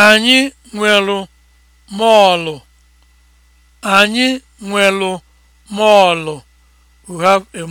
Anyị nwelu mọọlụ. Anyị nwelu mọọlụ.